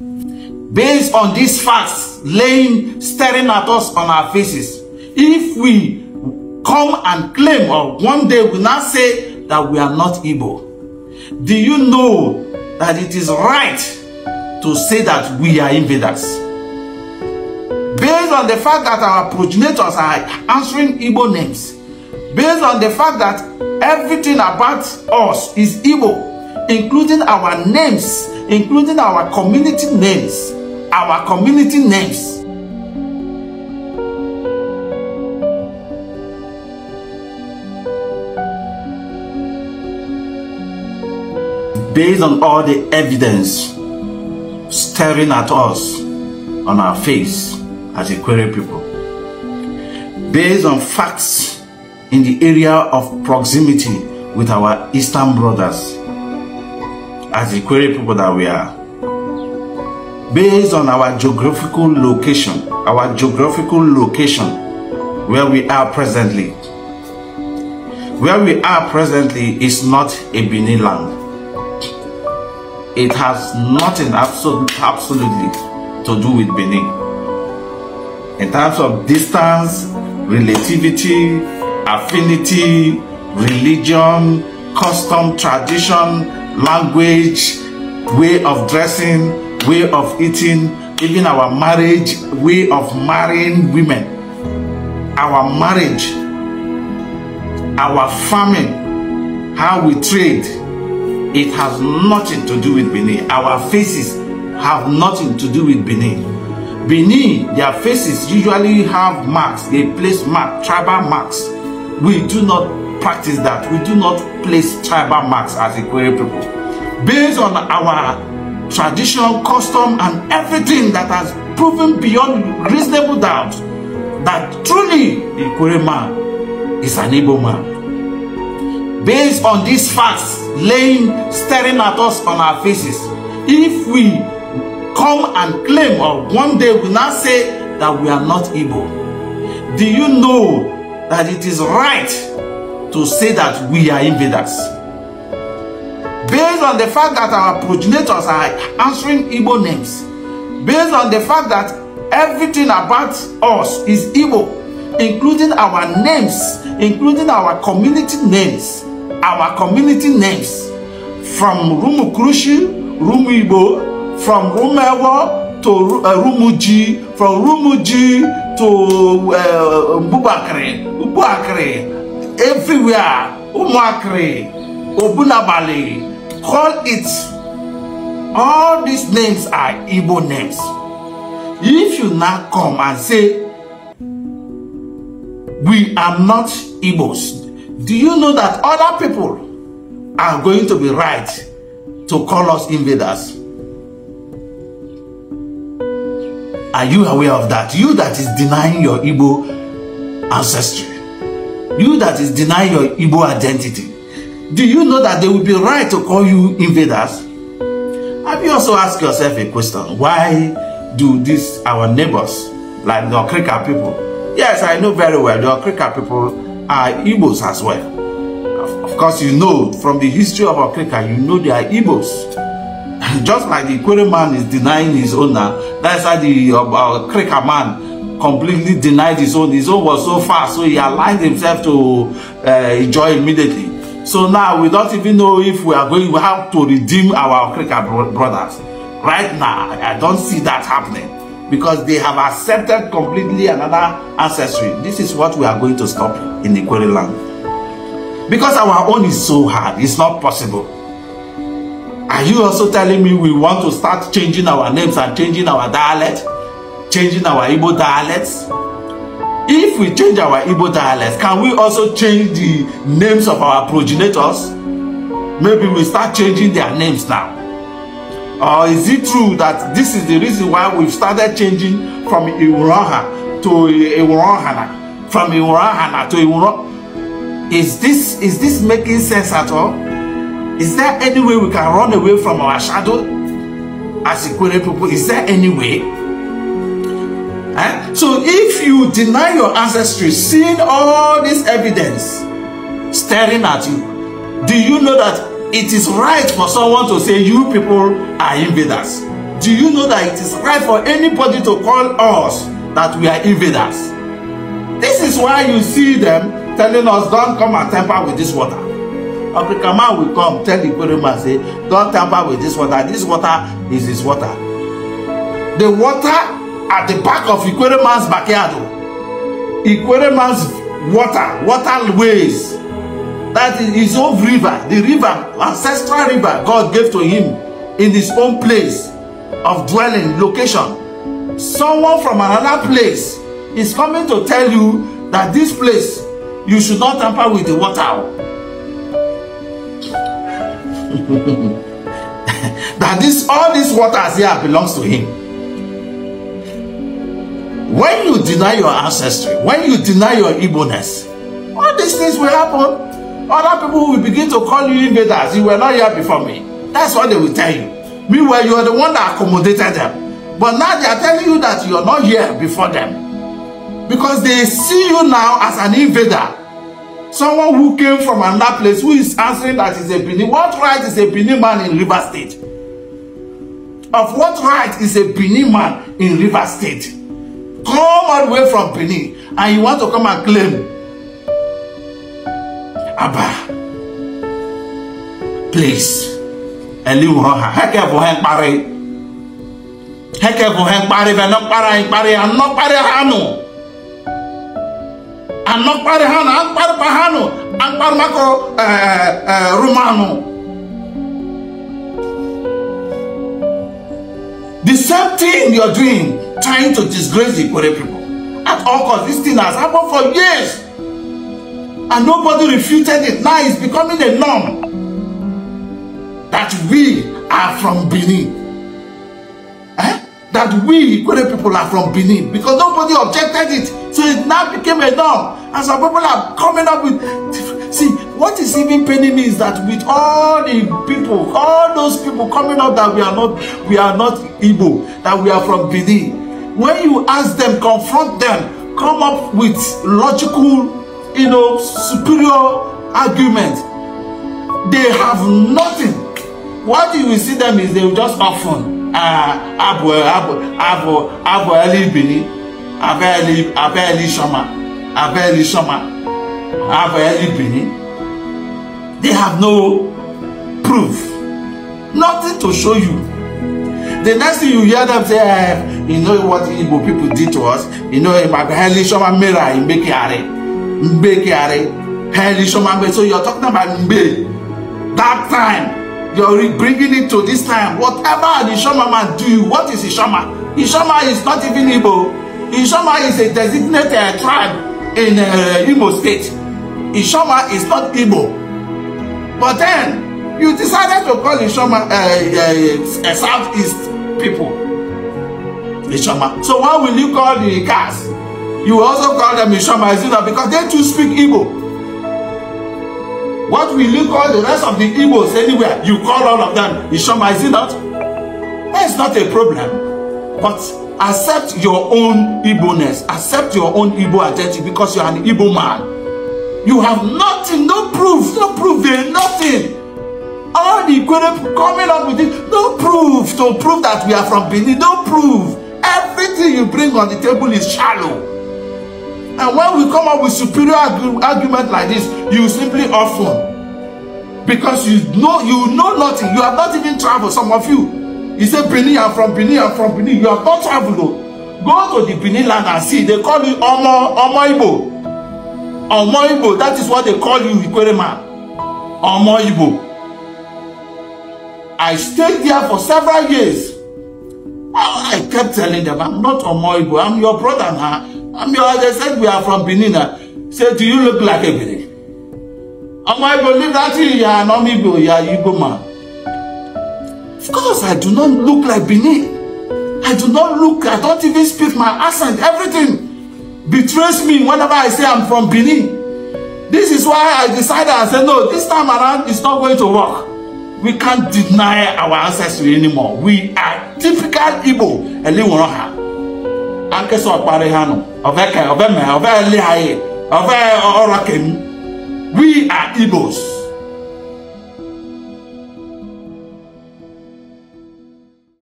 Based on these facts laying staring at us on our faces, if we come and claim or one day we not say that we are not evil. do you know that it is right to say that we are invaders? Based on the fact that our progenitors are answering evil names, based on the fact that everything about us is evil, including our names including our community names our community names. based on all the evidence staring at us on our face as a people based on facts in the area of proximity with our eastern brothers as the query people that we are. Based on our geographical location, our geographical location where we are presently, where we are presently is not a Benin land. It has nothing absolutely, absolutely to do with Benin. In terms of distance, relativity, affinity, religion, custom, tradition, language, way of dressing, way of eating, even our marriage, way of marrying women, our marriage, our farming, how we trade, it has nothing to do with Benin. Our faces have nothing to do with Benin. Benin, their faces usually have marks. They place mark, tribal marks. We do not practice that. We do not place tribal marks as Ikwere people. Based on our traditional custom, and everything that has proven beyond reasonable doubt that truly Ikwere man is an able man. Based on these facts laying staring at us on our faces, if we come and claim or one day we now say that we are not able, do you know that it is right to say that we are invaders. Based on the fact that our progenitors are answering Igbo names, based on the fact that everything about us is Igbo, including our names, including our community names, our community names, from Rumukrushi, Rumu Igbo, from Rumewo to uh, Rumuji, from Rumuji to uh, Mbubakri, Mbubakri, everywhere Umuakri, Obunabali, call it. All these names are Igbo names. If you now come and say, we are not Igbos, do you know that other people are going to be right to call us invaders? Are you aware of that? You that is denying your Igbo ancestry. You that is denying your Igbo identity, do you know that they will be right to call you invaders? Have you also asked yourself a question? Why do these our neighbors, like the Okrika people? Yes, I know very well the Okrika people are Igbos as well. Of course, you know from the history of Okrika, you know they are Igbos. Just like the Ikwere man is denying his owner, that's how the uh, man completely denied his own. His own was so fast, so he aligned himself to uh, joy immediately. So now we don't even know if we are going to have to redeem our African brothers. Right now, I don't see that happening because they have accepted completely another ancestry. This is what we are going to stop in the query land. Because our own is so hard, it's not possible. Are you also telling me we want to start changing our names and changing our dialect? changing our Igbo dialects? If we change our Igbo dialects, can we also change the names of our progenitors? Maybe we start changing their names now. Or is it true that this is the reason why we've started changing from Iwuroha to Iwurohana, from Iwurohana to Iwuro? Is this is this making sense at all? Is there any way we can run away from our shadow as Ikwere people? Is there any way? So if you deny your ancestry, seeing all this evidence staring at you, do you know that it is right for someone to say you people are invaders? Do you know that it is right for anybody to call us that we are invaders? This is why you see them telling us, don't come and tamper with this water. African man will come, tell the Igbo man, say, don't tamper with this water. This water is his water. The water at the back of Ikwereman's backyard. Oh. Ikwereman's water, waterways. That is his own river, the river, ancestral river God gave to him in his own place of dwelling, location. Someone from another place is coming to tell you that this place, you should not tamper with the water. Oh. that this all these waters here belongs to him When you deny your ancestry, when you deny your Igbo-ness, all these things will happen. Other people will begin to call you invaders. You were not here before me. That's what they will tell you. Meanwhile, you are the one that accommodated them. But now they are telling you that you are not here before them. Because they see you now as an invader. Someone who came from another place who is answering that is a Benin. What right is a Benin man in River State? Of what right is a Benin man in River State? come all the way from Benin and you want to come and claim Abba, please, Eliwaha, heke for hen pare, heke for hen pare, ve pare hen pare, an nok pare hanu, an pare hanu, an pare pa hanu, pare mako eh, eh, eh, The same thing you're doing trying to disgrace the Ikore people. At all costs, this thing has happened for years. And nobody refuted it. Now it's becoming a norm that we are from Benin. Eh? That we, Ikore people, are from Benin because nobody objected it. So it now became a norm. And some people are coming up with. See, what is even paining me is that with all the people, all those people coming up that we are not, we are not Igbo, that we are from Benin when you ask them confront them come up with logical you know superior argument they have nothing what you will see them is they will just often ah abo abo abo abo elibini abeli abeli shoma abeli shoma abo elibini they have no proof nothing to show you the next thing you hear them say eh You know what Igbo people did to us. You know, Heli Shoma Mera in Bekiare. Mbekiare. Heli Shoma So you're talking about Mbe. That time. You're bringing it to this time. Whatever the man do, what is Ishama? Ishama is not even Igbo. Ishama is a designated uh, tribe in uh, Igbo state. Ishama is not Igbo. But then, you decided to call Ishoma uh, uh, uh, Southeast people. Ishoma. So why will you call the Ikas? You also call them Ishoma, is it not? Because they too speak Igbo. What will you call the rest of the Igbos anywhere? You call all of them Ishoma, is it not? That's not a problem. But accept your own Igbo-ness. Accept your own Igbo identity because you are an Igbo man. You have nothing, no proof, no proof, there, nothing. All the Ikwere coming up with it, no proof to prove that we are from Benin, no proof everything you bring on the table is shallow and when we come up with superior argu argument like this you simply often because you know you know nothing you have not even traveled some of you you say benin i'm from benin i'm from benin you have not traveled though. go to the benin land and see they call you omo omo igbo omo igbo that is what they call you ikwerema omo igbo i stayed there for several years I kept telling them, I'm not Omoibo, I'm your brother now. I'm your, they said we are from Benin. Say, do you look like a Benin? Omoibo, leave that to you, are an Omibo, you are Igbo man. Of course, I do not look like Benin. I do not look, I don't even speak my accent, everything betrays me whenever I say I'm from Benin. This is why I decided, I said, no, this time around, it's not going to work we can't deny our ancestry anymore we are typical igbo elinwere ha ankesa ọkparị ha nọ ọveka ọveme ọvele ha ọve ọrọ kem we are igbos